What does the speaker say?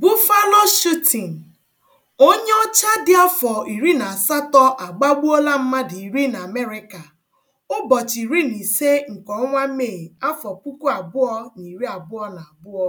buffalo shooting Onye ọcha dị afọ iri na asatọ agbagbuola mmadụ iri na amerịka ụbọchị iri na ise nke ọnwa Mee, afọ puku abụọ na iri abụọ na abụọ.